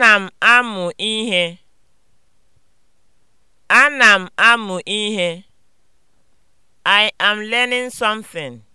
Ana m amụ ihe. Ana m amụ ihe. I am learning something.